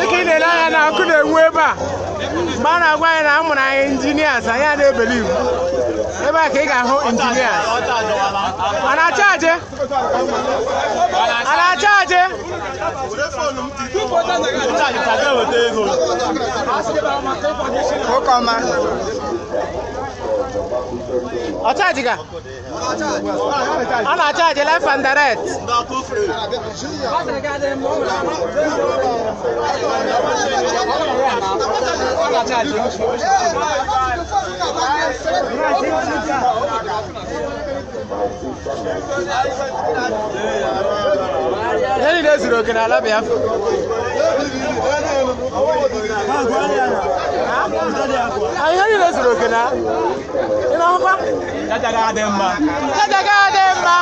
dịka ị na-ele anya na ọkụ na-enwu ebe a mgbe a na-agwa anyị na a mụrụ anyị injinias anyị ebe a ka ị ga-ahụ injinias a na-achaje a na-achaje Ọ chaajị ga? Ọ na-achaajị left and direct. Enyi na-ezuru oke n'ala Biafra. Anyị niile zuru oke na Inaomba daga demba. Daga demba.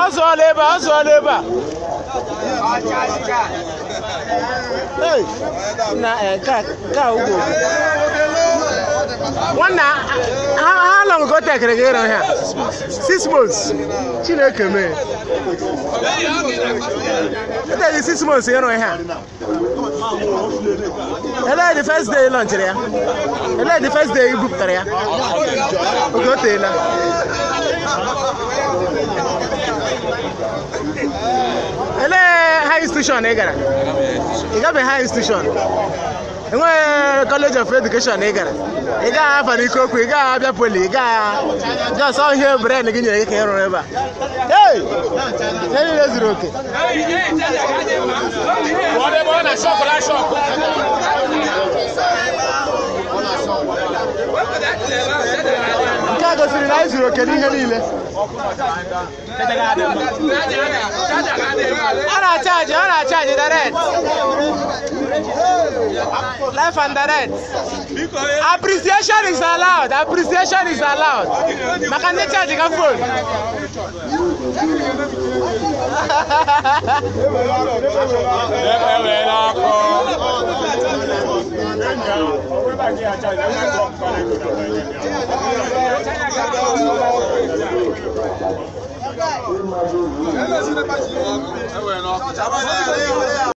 Azoleba, azoleba. Hey, na eh ka ka ugo. ha kọtakịrị gị ịrụ ha six months chineke mee eteghị six months ịrụ ha elee the first day lọnchịrị ya elee the first day ibupụtara ya oge o elee high institution ị gara ị gabeghị high institution enweghị kọleji of edukeshọn ị gara ị gaghị afa n'ike okwu ị gaghị abịa poli ị gaghị jọsọ ihe bren gị nyere gị ka ị rụrụ ebe a ee niile zuru oke nke a gosiri na anyị zuru oke n'ihe niile A na-achaji a na-achaji direct life and direct. Appreciation is allowed. Appreciation is allowed. Makane charge ka phone. Hello,